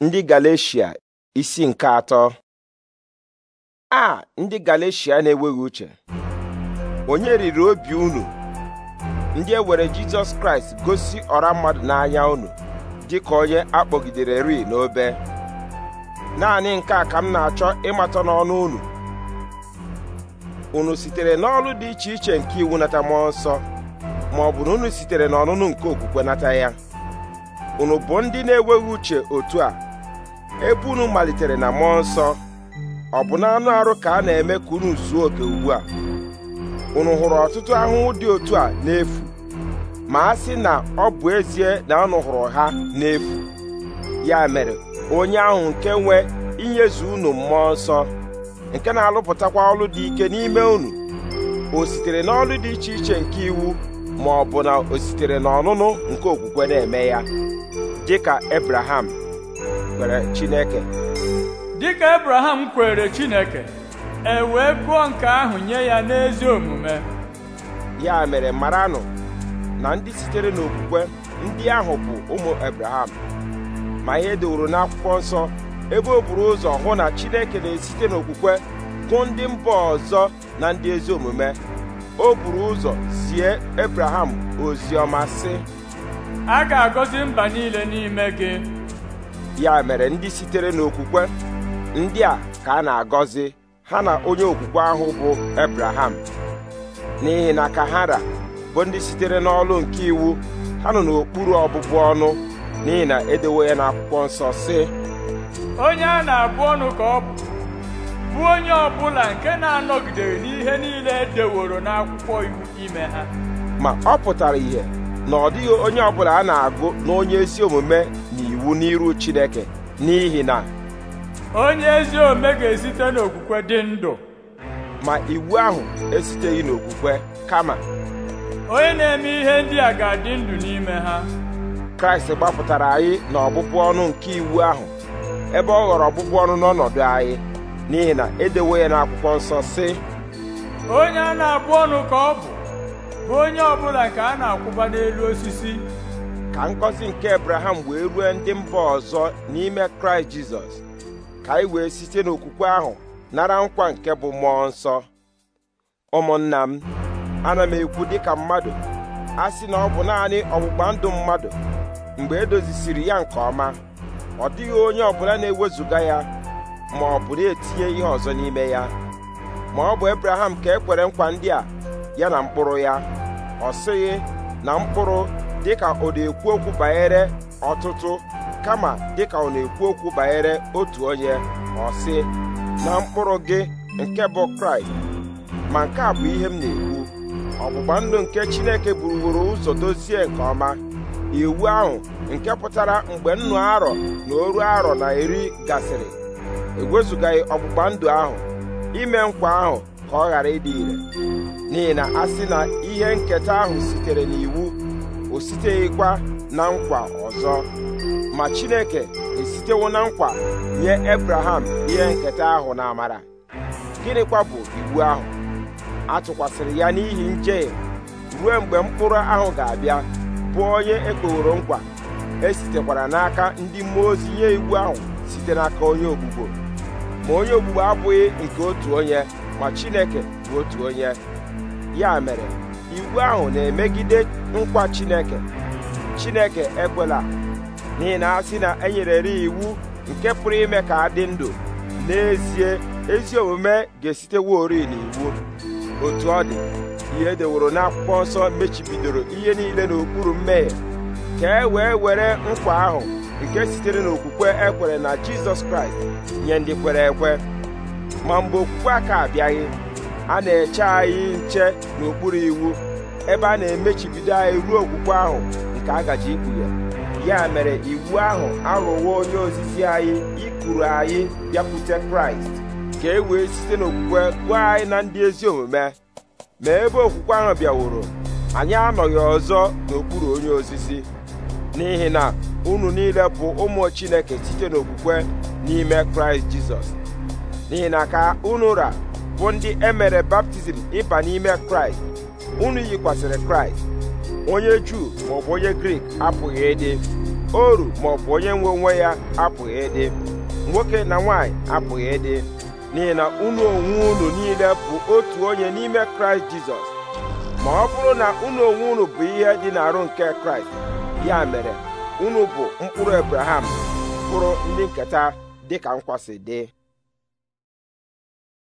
ndị Galeshia isi nke atọ a ndị Galeshia na-enweghị uche onye riri obi unu ndị e were Jizọs Kraịst gosi ọra mmadụ n'anya unu dịka onye akpọgidere ri n'obe naanị nke a ka m na-achọ ịmata n'ọnụ unu unu sitere n'ọrụ dị iche iche nke iwu nata mmụọ nsọ ma ọ bụ na unu sitere n'ọnụnụ nke okwukwe nata ya unu bụ ndị na-enweghị uche otu a ebe unu malitere na mmụọ nsọ ọ bụ na anụ arụ ka a na-eme ka unu zuo oke ugbu a unu hụrụ ọtụtụ ahụhụ dị otu a n'efu ma a sị na ọ bụ ezie na unu hụrụ ha n'efu ya mere onye ahụ nke nwe inyezu unu mmụọ nsọ nke na-alụpụtakwa ọlụ dị ike n'ime unu o sitere n'ọlụ dị iche iche nke iwu ma ọ bụ na o sitere n'ọnụnụ nke okwukwe na-eme ya dịka Abraham kwere Chineke dịka Abraham kwere Chineke e wee gụọ nke ahụ nye ya n'ezi omume ya mere maranụ na ndị sitere n'okwukwe ndị ahụ bụ ụmụ Abraham ma ihe deworo n'akwụkwọ nsọ ebe o buru ụzọ hụ na Chineke na-esite n'okwukwe gụ ndị mba ọzọ na ndị ezi omume o buru ụzọ zie ebraham ozi ọma sị a ga-agọzi mba niile n'ime gị ya mere ndị sitere n'okwukwe ndị a ka a na-agọzi ha na onye okwukwe ahụ bụ Ebraham n'ihi na kahara bụ ndị sitere n'ọlụ nke iwu ha nọ n'okpuru ọbụbụ ọnụ n'ihi na edewo ya n'akwụkwọ nsọ sị onye a na-abụ ọnụ ka ọ bụ bụ onye ọbụla nke na-anọgidere n'ihe niile edeworo n'akwụkwọ iwu ime ha ma ọ pụtara ihe na ọ dịghị onye ọbụla a na-agụ na onye ezi omume bụ n'iru Chineke n'ihi na onye ezi ome ga-esite n'okwukwe dị ndụ ma iwu ahụ esiteghị n'okwukwe kama onye na-eme ihe ndị a ga-adị ndụ n'ime ha Kraịst gbapụtara anyị na ọbụbụ ọnụ nke iwu ahụ ebe ọ ghọrọ ọbụbụ ọnụ n'ọnọdụ anyị n'ihi na edewo ya n'akwụkwọ nsọ sị onye a na-abụ ọnụ ka ọ bụ bụ onye ọbụla ka a na-akwụba n'elu osisi ka ngọzi nke abraham wee rue ndị mba ọzọ n'ime kraịst jizọs ka anyị wee site n'okwukwe ahụ nara nkwa nke bụ mmụọ nsọ ụmụnna m ana m ekwu dịka mmadụ a sị na ọ bụ naanị ọgbụgba ndụ mmadụ mgbe edozisiri ya nke ọma ọ dịghị onye ọbụla na-ewezụga ya ma ọ bụ na-etinye ihe ọzọ n'ime ya ma ọ bụ Abraham ka e kwere nkwa ndị a ya na mkpụrụ ya ọ sịghị na mkpụrụ dịka ọ na-ekwu okwu banyere ọtụtụ kama dịka ọ na-ekwu okwu banyere otu onye ọ sị na mkpụrụ gị nke bụ kraịst ma nke a bụ ihe m na-ekwu ọgbụgba ndụ nke chineke buruworo ụzọ dozie nke ọma iwu ahụ nke pụtara mgbe nnụ arọ na oru arọ na iri gasịrị ewezụgaghị ọgbụgba ndụ ahụ ime nkwa ahụ ka ọ ghara ịdị ire n'ihi na a sị na ihe nketa ahụ sitere n'iwu o siteghịkwa na nkwa ọzọ ma chineke esitewo na nkwa nye ebraham ihe nketa ahụ na amara gịnịkwa bụ iwu ahụ a tụkwasịrị ya n'ihi njehie ruo mgbe mkpụrụ ahụ ga-abịa bụ onye ekpeworo nkwa esitekwara n'aka ndị mmụọ ozi nye iwu ahụ site n'aka onye ogbugbo ma onye ogbugbo abụghị nke otu onye ma chineke bụ otu onye ya mere iwu ahụ na-emegide nkwa Chineke Chineke ekwela n'ihi na asị na e nyerere iwu nke pụrụ ime ka a dị ndụ n'ezie ezi omume ga ori n'iwu otu ọ dị ihe edeworo akwụkwọ nsọ mechibidoro ihe niile n'okpuru mmehie ka e wee were nkwa ahụ nke sitere n'okwukwe ekwere na Jizọs Kraịst nye ndị kwere ekwe ma mgbe okwukwe aka abịaghị a na-eche anyị nche n'okpuru iwu ebe a na-emechibido anyị ruo okwukwe ahụ nke a gaji ikpughe ya mere iwu ahụ arụwo onye ozizi anyị ikuru anyị bịakwute kraịst ka e wee site n'okwukwe gwa anyị na ndị ezi omume ma ebe okwukwe ahụ bịaworo anyị anọghị ọzọ n'okpuru onye ozizi n'ihi na unu niile bụ ụmụ chineke site n'okwukwe n'ime kraịst jizọs n'ihi na ka unu ra bụ ndị emere baptizim ịba n'ime kraịst unu yikwasịrị kraịst onye juu maọbụ onye grik apụghị ịdị oru maọbụ onye nwe onwe ya apụghị ịdị nwoke na nwanyị apụghị ịdị n'ihi na unu onwe unu niile bụ otu onye n'ime kraịst jizọs ma ọ bụrụ na unu onwe unu bụ ihe dị n'arụ nke kraịst ya mere unu bụ mkpụrụ abraham mkpụrụ ndị nketa dịka nkwasị dị